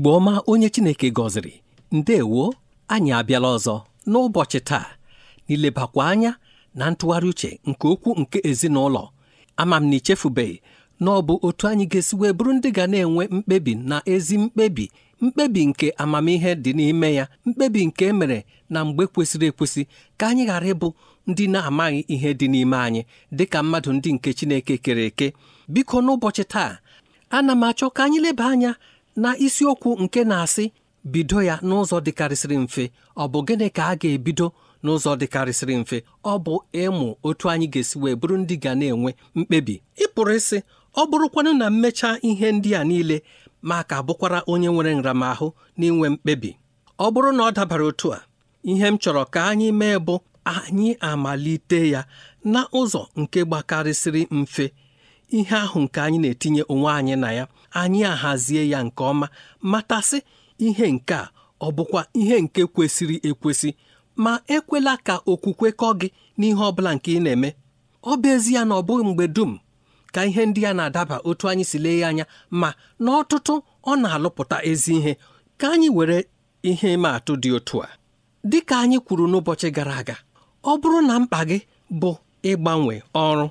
igbo ọma onye chineke gọziri ndewo anyị abịala ọzọ n'ụbọchị taa n'ilebakwa anya na ntụgharị uche nke okwu nke ezinụlọ ama m na ichefubeghị na ọ bụ otu anyị ga-esi wee bụrụ ndị ga na-enwe mkpebi na ezi mkpebi mkpebi nke amamihe dị n'ime ya mkpebi nke emere na mgbe kwesịrị ekwesị ka anyị ghara ịbụ ndị na-amaghị ihe dị n'ime anyị dị ka mmadụ ndị nke Chineke kere eke biko n'ụbọchị taa ana m achọ ka anyị leba anya na isiokwu nke na-asị bido ya n'ụzọ dịkarịsịrị mfe ọ bụ gịnị ka a ga-ebido n'ụzọ dịkarịsịrị mfe ọ bụ ịmụ otu anyị ga-esi wee bụrụ ndị ga na-enwe mkpebi ịpụrụ isi ịsị ọ bụrụkwanụ na mechaa ihe ndị a niile ma ka bụkwara onye nwere nramahụ n'inwe mkpebi ọ bụrụ na ọ dabara otu a ihe m chọrọ ka anyị mee bụ anyị amalite ya na ụzọ nke gbakarịsịrị mfe ihe ahụ nke anyị na-etinye onwe anyị na ya anyị ahazie ya nke ọma matasị ihe nke a ọ bụkwa ihe nke kwesịrị ekwesị ma ekwela ka okwukwe kọ gị n'ihe ọ bụla nke ị na-eme ọ bụ ezie na ọ bụghị mgbe dum ka ihe ndị a na-adaba otu anyị si lee ya anya ma n'ọtụtụ ọ na-alụpụta ezi ihe ka anyị were ihe ịma atụ dị otu a dị ka anyị kwuru n'ụbọchị gara aga ọ bụrụ na mkpa gị bụ ịgbanwe ọrụ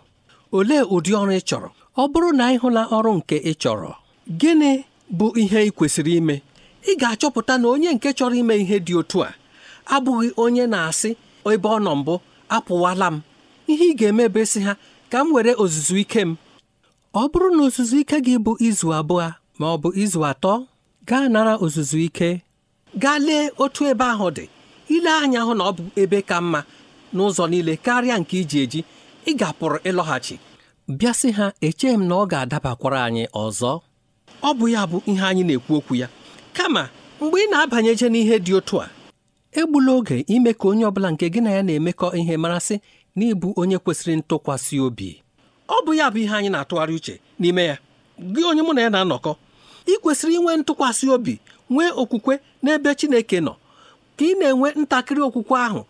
olee ụdị ọrụ ị chọrọ ọ bụrụ na ị hụla ọrụ nke ị chọrọ gịnị bụ ihe ị kwesịrị ime ị ga-achọpụta na onye nke chọrọ ime ihe dị otu a abụghị onye na-asị ebe ọ nọ mbụ apụwala m ihe ị ga-eme bụ ha ka m were ozuzu ike m ọ bụrụ na ozuzu ike gị bụ izu abụọ ma ọ bụ izu atọ gaa nara ozuzu ike gaa lee otu ebe ahụ dị ile anya hụ na ọ bụ ebe ka mma n'ụzọ niile karịa nke iji eji ị ga ịlọghachi bịa sị ha echeghị m na ọ ga-adabakwara anyị ọzọ ọ bụ ya bụ ihe anyị na-ekwu okwu ya kama mgbe ị na-abanyeje n'ihe dị otu a egbula oge ime ka onye ọbụla nke gị na ya na-emekọ ihe marasị na ịbụ onye kwesịrị ntụkwasị obi ọ bụ ya bụ ihe anyị na-atụgharị uche n'ime ya gị onye mụ na ya na-anọkọ ị kwesịrị inwe ntụkwasị obi nwee okwukwe n'ebe Chineke nọ ka ị na-enwe ntakịrị okwukwe ahụ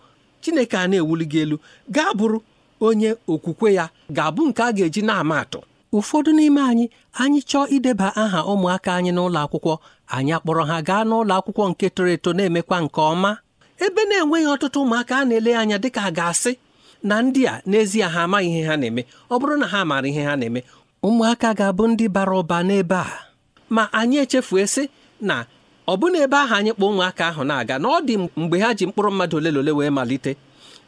Chineke a na-ewuli gị elu gaa bụrụ onye okwukwe ya ga-abụ nke a ga-eji na-ama atụ ụfọdụ n'ime anyị anyị chọọ ideba aha ụmụaka anyị n'ụlọ akwụkwọ anyị akpọrọ ha gaa n'ụlọ akwụkwọ nke toro eto na-emekwa nke ọma ebe na-enweghị ọtụtụ ụmụaka a na-ele anya ka a ga-asị na ndị a n'ezie ha amaghị ihe ha na-eme ọ bụrụ na ha maara ihe ha na-eme ụmụaka ga-abụ ndị bara ụba n'ebe a ma anyị echefuesị sị na ọ bụ ebe ahụ anyị kpọ ụmụaka ahụ na-aga na ọ dị mgbe ha ji mkpụrụ mmadụ ole na ole wee malite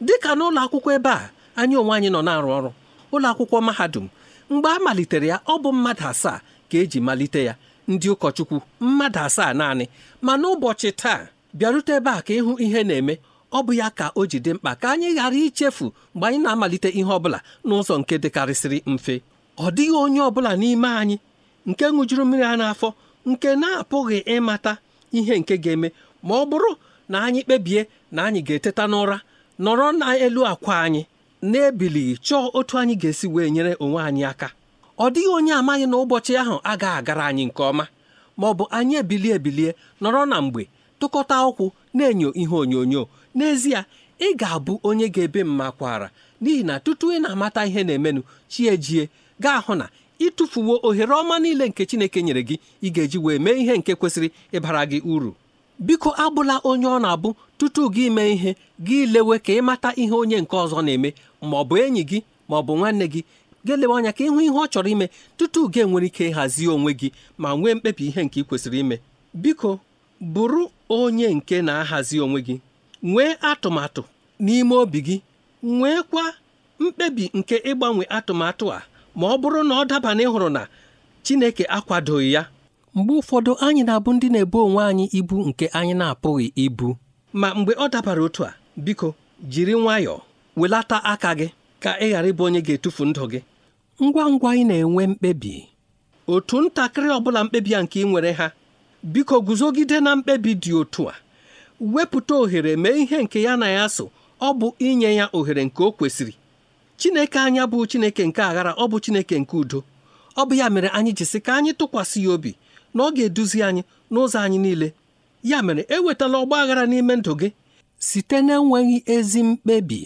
dịka n'ụlọ akwụkwọ ebe a anyị onwe anyị nọ na-arụ ọrụ ụlọ akwụkwọ mahadum mgbe a malitere ya ọ bụ mmadụ asaa ka eji malite ya ndị ụkọchukwu mmadụ asaa naanị ma n'ụbọchị taa bịarute ebe a ka ịhụ ihe na-eme ọ bụ ya ka o ji dị mkpa ka anyị ghara ichefu mgbe anyị na-amalite ihe ọbụla n'ụzọ nke dịkarịsịrị mfe ọ dịghị onye ọbụla n'ime anyị nke ṅụjuru mmiri a n'afọ nke na-apụghị ịmata ihe nke ga-eme ma ọ bụrụ na anyị kpebie na anyị ga-eteta n'ụra nọrọ n'elu akwa anyị na-ebilighị chọọ otu anyị ga-esi wee nyere onwe anyị aka ọ dịghị onye amaghị na ụbọchị ahụ agaghị agara anyị nke ọma ma ọ bụ anyị ebilie ebilie nọrọ na mgbe tụkọta ụkwụ na-enyo ihe onyonyo n'ezie ị ga-abụ onye ga-ebe mma kwara n'ihi na tutu ị na-amata ihe na-emenụ chi ejie gaa hụ na ịtụfuwo ohere ọma niile nke Chineke nyere gị ị ga-eji wee mee ihe nke kwesịrị ịbara gị uru biko abụla onye ọ na-abụ tutu gị mee ihe gị lewe ka ịmata ihe onye nke ọzọ na-eme ma ọ bụ enyi gị ma ọ bụ nwanne gị gelewe anya ka ịhụ ihe ọ chọrọ ime tutu gị nwere ike ịhazi onwe gị ma nwee mkpebi ihe nke ị kwesịrị ime biko bụrụ onye nke na-ahazi onwe gị nwee atụmatụ n'ime obi gị nweekwa mkpebi nke ịgbanwe atụmatụ a ma ọ bụrụ na ọ daba na ịhụrụ na Chineke akwadoghị ya mgbe ụfọdụ anyị na-abụ ndị na-ebu onwe anyị ibu nke anyị na-apụghị ibu ma mgbe ọ dabara otu a biko jiri nwayọọ welata aka gị ka ị ghara ịbụ onye ga-etufu ndụ gị ngwa ngwa ị na-enwe mkpebi otu ntakịrị ọbụla mkpebi a nke ị nwere ha biko guzogide na mkpebi dị otu a wepụta ohere mee ihe nke ya na ya so ọ bụ inye ya ohere nke o kwesịrị Chineke anya bụ Chineke nke aghara ọ bụ Chineke nke udo ọ bụ ya mere anyị ji sị ka anyị tụkwasị ya obi na ọ ga-eduzi anyị n'ụzọ anyị niile ya mere ewetala ọgba aghara n'ime ndụ gị site na enweghị ezi mkpebi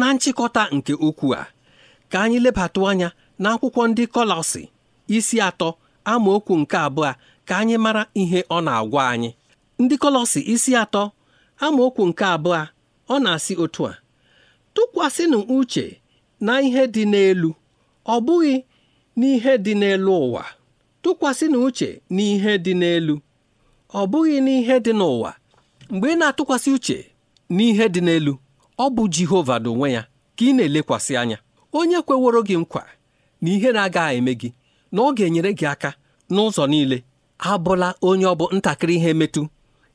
na nchịkọta nke okwu a ka anyị lebatụ anya na akwụkwọ ndị Kọlọsi isi atọ amaokwu nke abụọ ka anyị mara ihe ọ na-agwa anyị ndị Kọlọsi isi atọ amaokwu nke abụọ ọ na-asị otu a tụkwasịnụ uche na ihe dị n'elu ọ bụghị n'ihe dị n'elu ụwa tụkwasịnụ uche na ihe dị n'elu ọ bụghị n'ihe dị n'ụwa mgbe ị na-atụkwasị uche n'ihe dị n'elu ọ bụ Jehova n'onwe ya ka ị na-elekwasị anya onye kweworo gị nkwa na ihe na-agaghị eme gị na ọ ga-enyere gị aka n'ụzọ niile abụla onye ọ bụ ntakịrị ihe metụ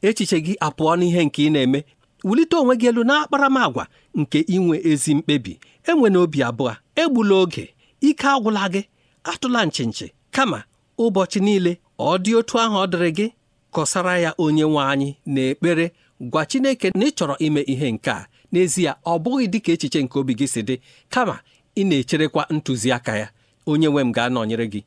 echiche gị apụọ n'ihe nke ị na-eme wulite onwe gị elu n'akparamagwa nke inwe ezi mkpebi enwe obi abụọ egbula oge ike agwụla gị atụla nchinchi kama ụbọchị niile ọ dị otu ahụ ọ dịrị gị kọsara ya onye nwe anyị na ekpere gwa Chineke na ị chọrọ ime ihe nke a n'ezie ọ bụghị dịka echiche nke obi gị si dị kama ị na-echerekwa ntụziaka ya onye nwe m ga-anọnyere gị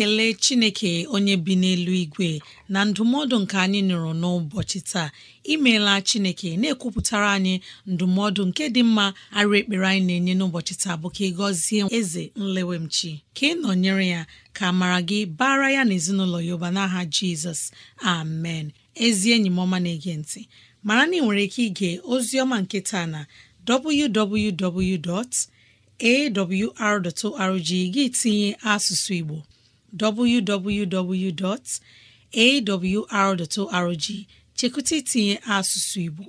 e ekele chineke onye bi n'elu igwe na ndụmọdụ nke anyị nụrụ n'ụbọchị taa imeela chineke na-ekwupụtara anyị ndụmọdụ nke dị mma arụ ekpere anyị na-enye n'ụbọchị taa bụ ka ị gọzie eze nlewemchi ka ị nọnyere ya ka mara gị bara ya na ezinụlọ ya ụba n'aha jizọs amen ezi enyi m na-ege ntị mara na ị nwere ike ige ozi ọma nke taa na www gị tinye asụsụ Igbo www.awr.org chekwụta itinye asụsụ Igbo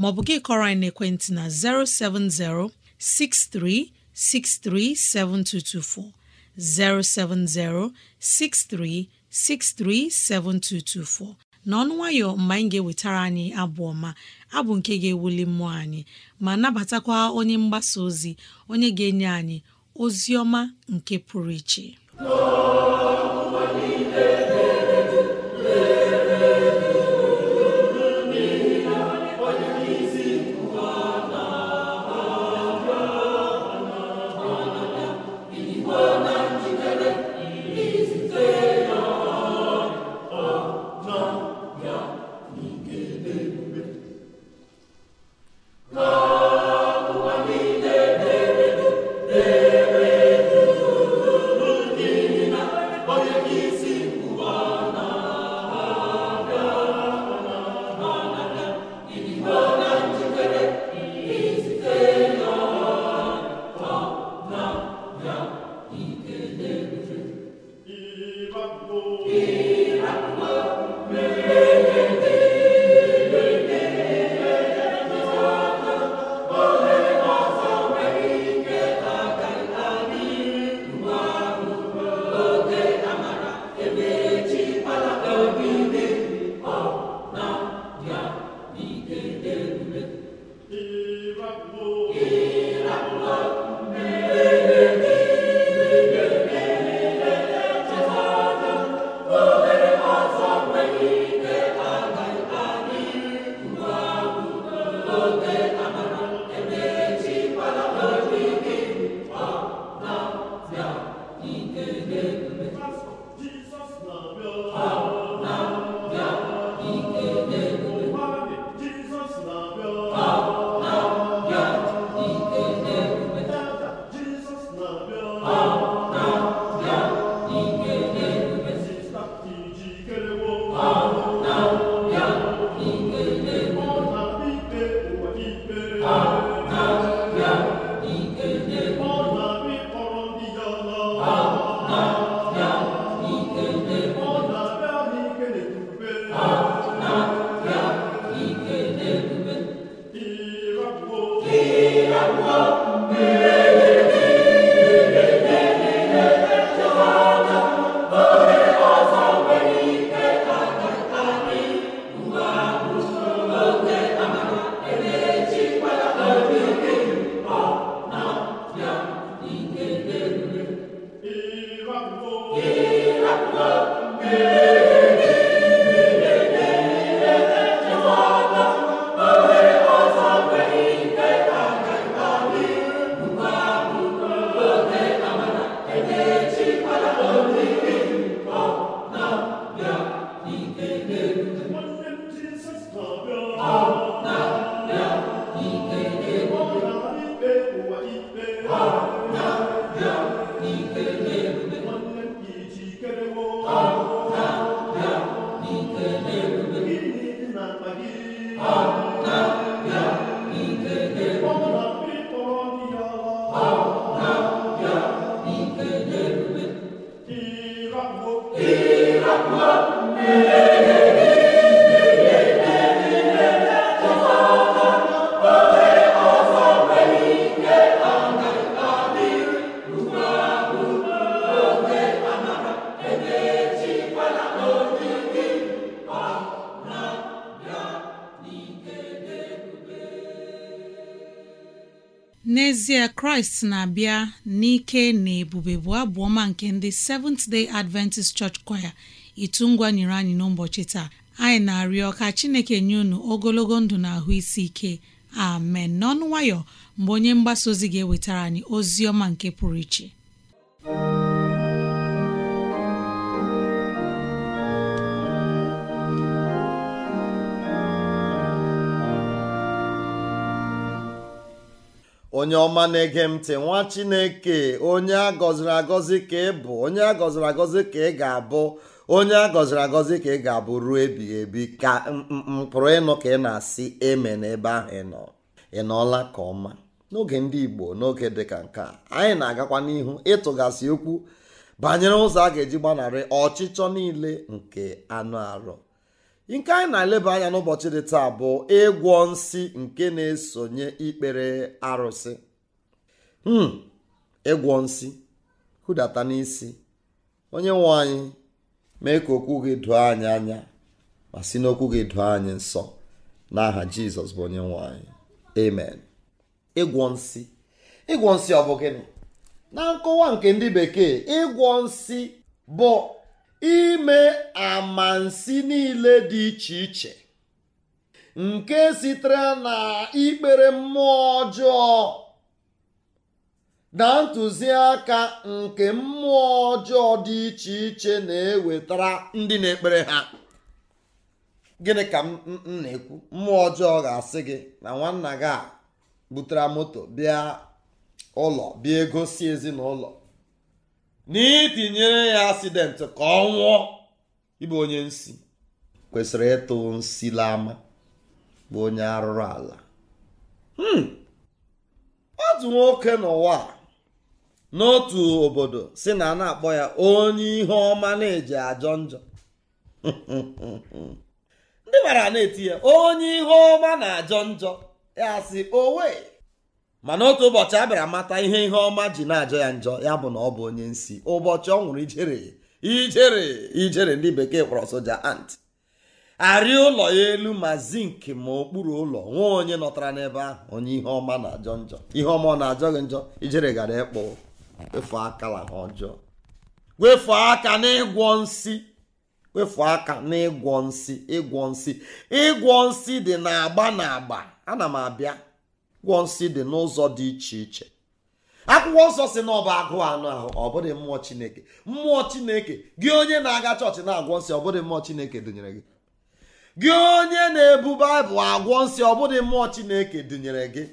maọbụ gị kọrọ anyị n'ekwentị na 070 6363 7224 070 6363 7224 n'ọnụ nwayọ mgbe anyị ga-ewetara anyị abụ ọma abụ nke ga-ewuli mmụọ anyị ma nabatakwa onye mgbasa ozi onye ga-enye anyị ozi ọma nke pụrụ iche Lord. Kraịst na-abịa n'ike na ebube bụ abụ nke ndị Seventh Day Adventist Church Choir itu ngwa nyere anyị n'ụbọchị taa anyị na-arịọ ka Chineke nye unu ogologo ndụ na ahụ isi ike amen n'ọnụ nwayọ mgbe onye mgbasa ozi ga-ewetara anyị ozi ọma nke pụrụ iche onye ọma na-ege ntị nwa chineke onye a gọziri agọzi ka ị bụ onye a gọziri agọzi ka ị ga-abụ onye a gọziri agọzi ka ị ga-abụ ruo ebighị ebi ka mpụrụ ịnụ ka ị na-asị eme n'ebe ahụ ị nọ ị nọọla ka ọma n'oge ndị igbo n'oge dịka nke a anyị na-agakwa n'ihu ịtụgasị okwu banyere ụzọ a ga-eji gbanarị ọchịchọ niile nke anụ arụ nke anyị na-eleba anya n'ụbọchị dị taa bụ ịgwọ nsị nke na-esonye ikpere arụsị hmm, ịgwọ nsị hụdata n'isi onye nwe anyị mee ka okwu gị doo anyị anya ma si n'okwu gị doo anyị nsọ n'aha jizọs bụ onye nwanyị anyị amen ịgwọ nsị ịgwọ nsị ọ bụ gịnị na nkọwa nke ndị bekee ịgwọ nsị bụ ime amansi niile dị iche iche nke sitere na ikpere mmụọ ọjọọ na ntụziaka nke mmụọ ọjọọ dị iche iche na-ewetara ndị na-ekpere ha gịnị ka m na-ekwu mmụọ ọjọọ ga-asị gị na nwanna gị a butere moto bịa ụlọ bịa egosi ezinụlọ na itinyere ya asidenti ka ọ nwụọ ịbụ onye nsi kwesịrị ịtụ nsi ama, bụ onye arụrụ ala hmm. otu nwoke n'ụwa n'otu obodo si na a na-akpọ ya onye ihe ọma na-eji ajọ njọ ndị mara na-eti ya onye ihe ọma na ajọ njọ ya sị owe mana otu ụbọchị a bịara mata ihe ihe ọma ji na-ajọ ya njọ ya bụ na ọ bụ onye nsi ụbọchị ọ nwụrụ ijere ijere ijere ndị bekee kpọrọ soja ant arị ụlọ ya elu ma zink ma okpuru ụlọ nwee onye nọtara n'ebe ahụ onye ihe ọma na-ajọ njọ ihe ọma ọ na-ajọ gị njọ ijere gara ịkpụ wefuo aka na ọjọọ wefuo aka n'ịgwọ nsi wefuo aka n'ịgwọ nsi ịgwọ nsi ịgwọ nsi dị na agba na agba ana m abịa ụgwọ nsị dị n'ụzọ dị iche iche akwụkwọ nsọ si na ọ bụ agụụ anụ ahụ ọ bụghị mmụọ chineke mmụọ chineke gị onye na-aga chọọchị na-agwọ nsị ọ bụghị mmụọ chineke dụnyere gị gị onye na-ebu baịbụl agwọ nsị ọ bụghị mmụọ chineke dụnyere gị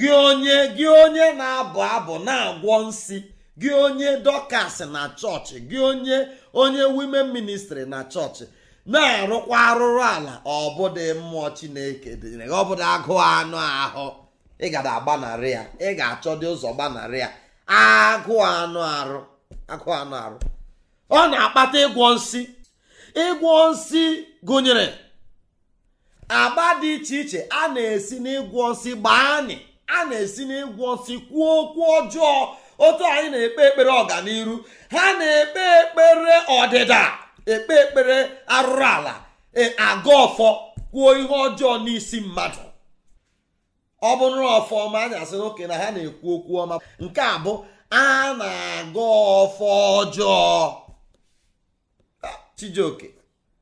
gị onye gị onye na-abụ abụ na-agwọ nsị gị onye dọkas na chọọchị gị onye onye wimen ministri na chọọchị na-arụkwa arụrụ ala ọbụdị mmụọ chineke dịnyere gị ọbụdị agụụ anụ ahụ ị gara agbanarị ya ị ga-achọdị ụzọ gbanarị ya agụụ anụ arụ agụụ anụ arụ ọ na-akpata ịgwọ nsị ịgwọ nsị gụnyere agba dị iche iche a na-esi n'ịgwọ nsị gbaa anyị a na-esi n'ịgwọ nsị kwuo okwu ọjọọ otu anyị na-ekpe ekpere ọganihu ha na-ekpe ekpere ọdịda ekpe ekpere arụrụ ala e, agụ ọfọ kwuo ihe ọjọọ n'isi mmadụ ọ bụrụ ọfọ ọma anyị asị oke na ha na-ekwu okwu ọma nke a bụ a na-aga ọfọ ọjọọ chijioke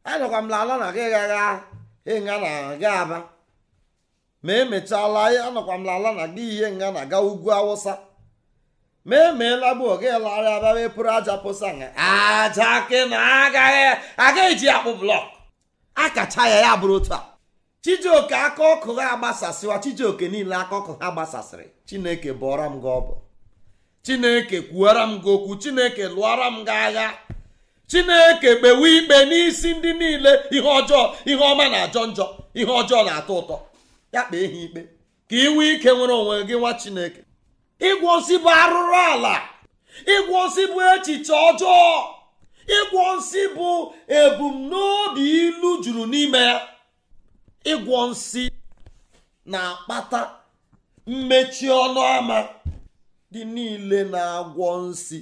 anyakwa m lala na gị ịnga na-aga aba ma emechala anọkwa m lala na gị ihe nga na-aga ugwu awụsa meemeela bụ oge larịa abawe pụrụ aja pụsa aja ke na agaghị agaghị ji akpụ blọk akacha ya ya bụrụ otu a chijioke aka ọkụ ha agbasasịwa chijioke niile aka ọkụ ha gbasasịrị chineke bụọra m gị ọbụ chineke kwuara m gị okwu chineke lụọra m gị agha chineke kpewe ikpe n'isi ndị niile ihe ọjọọ ihe ọma na-ajọ njọ ihe ọjọọ na-atọ ụtọ ya kpee ha ikpe ka iwe ike nwere onwe gị nwa chineke ịgwọzi bụ arụrụ ala ịgwọzi bụ echiche ọjọọ ịgwọ nsị bụ ebumnobi ilu juru n'ime ya ịgwọ nsị na-akpata mmechi ọnụ ama dị niile na-agwọ nsị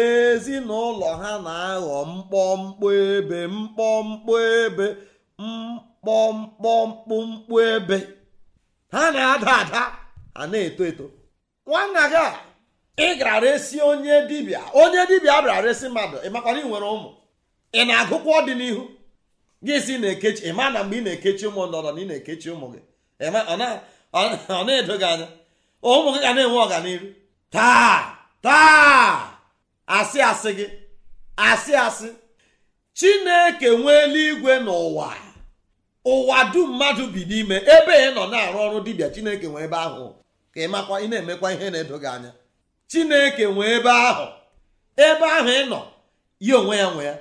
ezinụlọ ha na-aghọ mkpọmkpọ ebe mkpọmkpọ ebe ebe ha na-ada ada ha na-eto eto nwa nna gị a ị gara resi onye dibịa onye dibịa bịara resi mmadụ ị makwara ị nwere ụmụ ị na-agụkwa ọdịnihu gị si na-ekechi ị ma na mgbe ị na-ekechi ụmụ ndọrọ na ị na-ekechi ụmụ gị ọ na-edo gị anya ụmụ gị ga na-enwe ọganihu taa taa asị asị gị asị asị chineke nwee eluigwe n'ụwa ụwa dum mmadụ bi n'ime ebe ị nọ na-arụ ọrụ dibịa chineke nwee ebe ahụ ka ị makwa ị na-emekwa ihe na-edo gị anya chineke nwe ebe ahụ ebe ahụ ị nọ ya onwe ya nwe ya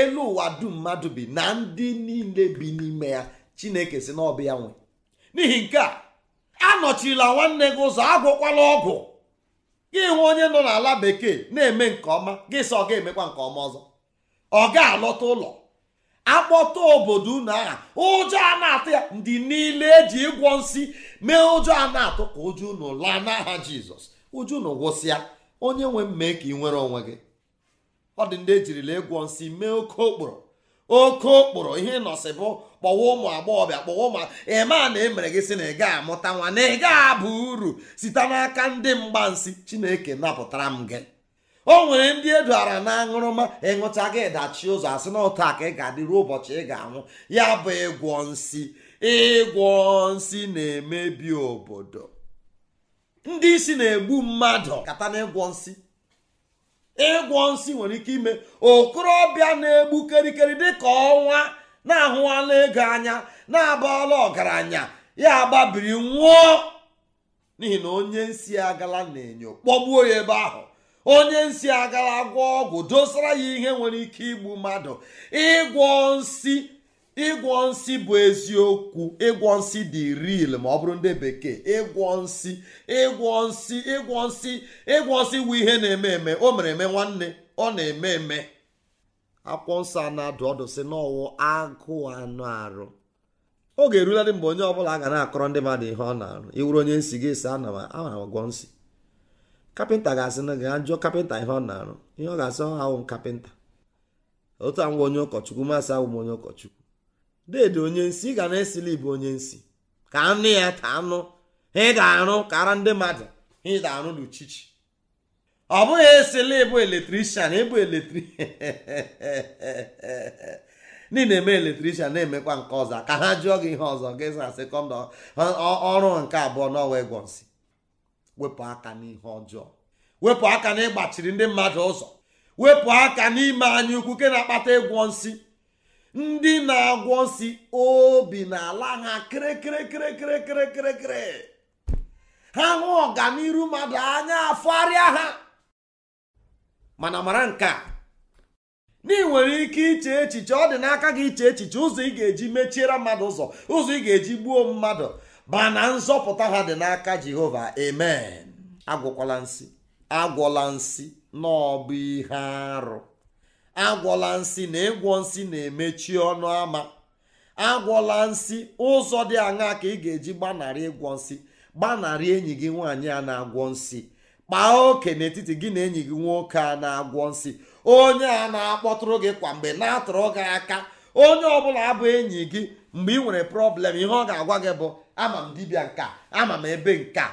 elu ụwa dum mmadụ bi na ndị niile bi n'ime ya chineke si na ọbụ ya nwe n'ihi nke a anọchila nwanne gị ụzọ agwụkwala ọgwụ gị hụ onye nọ n'ala bekee na-eme nke ọma gị sị ọ ga-emekwa nke ọma ọzọ ọ ga-alọta ụlọ akpọta obodo unu aha ụjọ a na-atụ ya ndị niile eji ịgwọ nsị mee ụjọ a na-atụ ka ụjọ unu laa n'aha jizọs ụjọ unu gwụsịa onye nwe mmee ka ị nwere onwe gị ọ dị ndị ejirila ịgwọ nsị mee oke okporo oke okporo ihe nọsị bụ kpọwa ụmụ agbọghọbịa kpọwa ụmụ ịma na emere gị sị na ị gaa amụta nwa na ị gaghị abụ uru site n'aka ndị mgbansi chineke napụtara m gị o nwere ndị eduara na aṅụrụma ịṅụcha gị dachi ụzọ asị na ụtọ ka ị ga-adịru ụbọchị ị ga-anwụ ya bụ ịgwọ nsị ịgwọ nsị na-emebi obodo ndị isi na-egbu mmadụ kata na ịgwọ nsị ịgwọ nsị nwere ike ime okorobịa na-egbu kerikeri dịka ọnwa na-ahụwala ego anya na-abala ọgaranya ya gbabiri nwụọ n'ihi na onye nsị agala na-enyo kpọgbuo ya ebe ahụ onye nsi agara gwọ ọgwụ dosara ya ihe nwere ike igbu mmadụ ịgwọ nsi ịgwọ nsi bụ eziokwu ịgwọ nsi dị ril ma ọ bụrụ ndị bekee ịgwọ nsi ịgwọ nsi ịgwọ nsi ịgwọ nsi bụ ihe na-eme eme o mere eme nwanne ọ na-eme eme akwụkwọ nsọ a na-adụ ọdụ si n'ọwụ agụụ anụ arụ oge eruladị mgbe onye ọ bụla ga na-akọrọ ndị mmadụ ihe ọ na-arụ iwuru onye nsi gị si ana m agwọ nsi kapịnta ga-asị na gaa jụọ kapịnta ihe ọ na-arụ ihe ọ ga-asị ọha awụ kapịnta otu anwụ onye ụkọchukwu masị awụ m onye ụkọchukwu deede onye nsi ị ga na-esili bụ onye nsi ka anụ ya ta anụ ha ga arụ ka ara ndị mmadụ ha ga arụ n'uchichi ọ bụghị esili ịbụ eletrishan ịbụ eletri ndị na-eme eletrishan na-emekwa nke ọzọ ka ha jụọ gị ihe ọzọ gị sasị kọndọ ọrụ nke abụọ n'ọwa egwọ nsị wepụ aka n'ihe ọjọọ wepụ aka n'ịgbachiri ndị mmadụ ụzọ wepụ aka n'ime anyị ukwu ke na-akpata ịgwọ nsị ndị na-agwọ nsị obi na-ala ha kịrịkịrịkịrịkịrịkịrịkịrịkịrị ha hụ ọganiru mmadụ anya afọgharịa ha mana mara nke a na nwere ike iche echiche ọ dị n'aka gị iche echiche ụzọ ị ga-eji mechiere mmadụ ụzọ ụzọ ị ga-eji gbuo mmadụ ba na nzọpụta ha dị n'aka jehova amen agwọkwala nsị agwọla nsị n'ọbụ ihe arụ agwọla nsị na ịgwọ nsị na-emechi ọnụ ama agwọla nsị ụzọ dị aṅaa ka ị ga-eji gbanarị ịgwọ nsị gbanarị enyi gị nwaanyị a na-agwọ nsị kpaa oke n'etiti gị na enyi gị nwoke a na-agwọ nsị onye a na-akpọtụrụ gị kwa mgbe na-atụrụ gị aka onye ọbụla abụ enyi gị mgbe ị nwere prọblem ihe ọ ga-agwa gị bụ ama m dibịa nka ama m ebe nka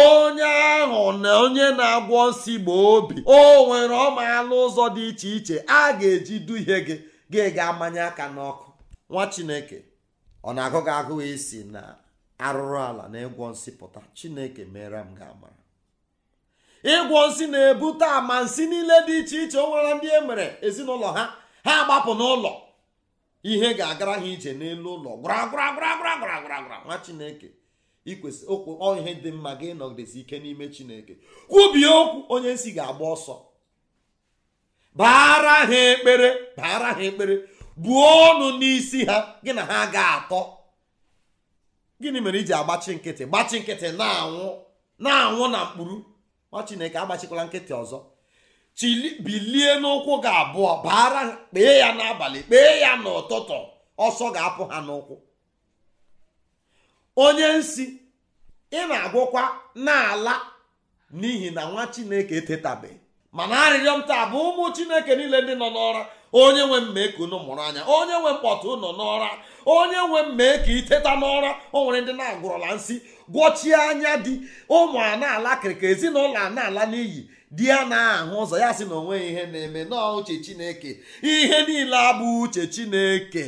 onye ahụ na onye na-agwọ nsi gboo obi o nwere ọmaalụ ụzọ dị iche iche a ga-eji duhie gị gị ga-amanye aka n'ọkụ nwa chineke ọ na-agụ gị agụụ isi na arụrụ ala na ịgwọ nsị pụta chineke mere m ga-amara ịgwọ nsị na-ebute ama nsị niile dị iche iche o nwere ndị e mere ezinụlọ ha ha gbapụ n'ụlọ ihe ga-agara ha ije n'elu ụlọ gwara nwa chineke ikwesị okwu ihe dị mma gị nọgidesi ike n'ime chineke kwubie okwu onye nsi ga-agba ọsọ baara ha ekpere baara ha ekpere buo ọnụ n'isi ha gị na ha ga-atọ gịnị mere iji agbachi nkịtị gbachi nkịtị na-anwụ na-anwụ na mkpụrụ nwa chineke agbachikwala nkịtị ọzọ chili bilie n'ụkwụ gị abụọ baara kpee ya n'abalị kpee ya n'ụtụtụ ọsọ ga-apụ ha n'ụkwụ onye nsi ị na-agwụkwa n'ala n'ihi na nwa chineke etetabeghị mana arịrịọ m taa bụ ụmụ chineke niile ndị nọ n'ọra onye nwe mmee ka unu mụrụ anya onye nwe mkpọtụ nọ n'ọra onye nwe mmee ka iteta n'ọra o nwere ndị na-agwụrụla nsị gwọchie anya dị ụmụ a na-ala kirikiri ezinụlọ a na-ala n'iyi di ya na-ahụ ụzọ ya sị na ya ihe na-eme nọọ uche chineke ihe niile abụ uche chineke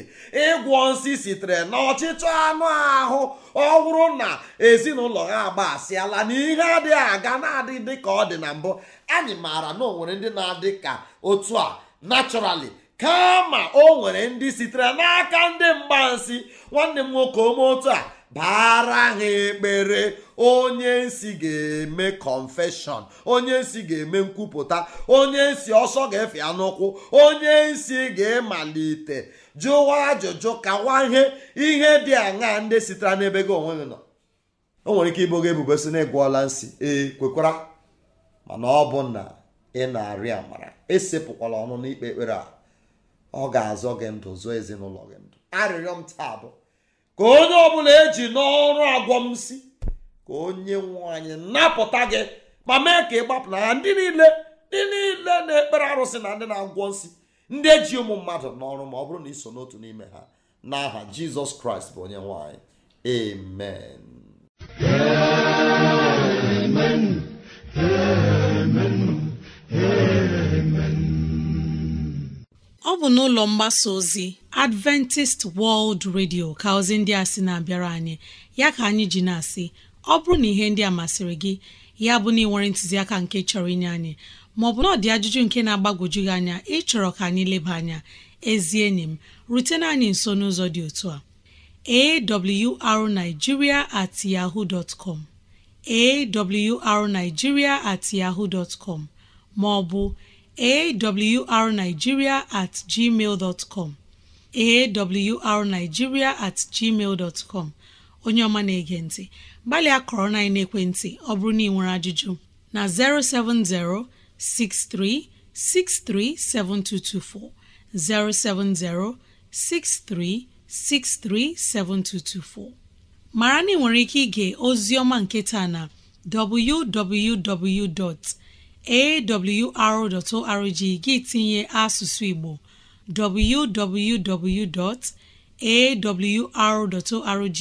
ịgwọ nsị sitere na ọchịchọ anụ ahụ ọ bụrụ na ezinụlọ ha agba asịala na ihe adịghị aga na-adị dị ka ọ dị na mbụ anyị maara na onwere ndị na-adị ka otu a naturally kama o nwere ndị sitere n'aka ndị mgbansi nwanne m nwoke ome otu a baara ha ekpere onye nsi ga-eme kọnfeshọn onye nsi ga-eme nkwupụta onye nsi ọsọ ga-efe ya n'ụkwụ onye nsi ga-emalite jụwa ajụjụ kawa ihe ihe dị aṅa ndị sitere n'ebe gị onwe gị nọ o nwere ike ịbụ gị ebubo si na ịgwọọla nsi ee kwekwara mana ọ bụ na ị na-arị amara esepụkwala ọnụ n'ikpe ekpere a ọ ga-azọ gị ndụ zụọ ezinụlọ gị ndụ arịrịọ m taa bụ ka onye ọbụla eji n'ọrụ agwọ m si ka onye nwanyị napụta gị ma mee ka ị gbapụ na ndị niile ndị niile na-ekpere arụsị na ndị na-agwọ nsị ndị eji ụmụ mmadụ n'ọrụ ma ọ bụrụ na iso n'otu n'ime ha n'aha jizọs kraịst bụ onye nwanyị. amen amen amen ọ bụ n'ụlọ mgbasa ozi adventist world radio ka ndị a sị na-abịara anyị ya ka anyị ji na-asị ọ bụrụ na ihe ndị a masịrị gị ya bụ na ị nwere ntụziaka nke chọrọ inye anyị maọbụ na ọ dị ajụjụ nke na agbagoju gị anya ịchọrọ ka anyị leba anya ezi enyi m rutena anyị nso n'ụzọ dị otu a arigiria at yahoo dot com at maọbụ arigiria at gmail at gmail onye ọma na-ege ntị gbalịa kọrọ na ekwentị ọ bụrụ na ị nwere ajụjụ na 07063637224 07063637224 mara na ị nwere ike ige ozi ọma nke taa na www.awr.org gị tinye asụsụ Igbo www.awr.org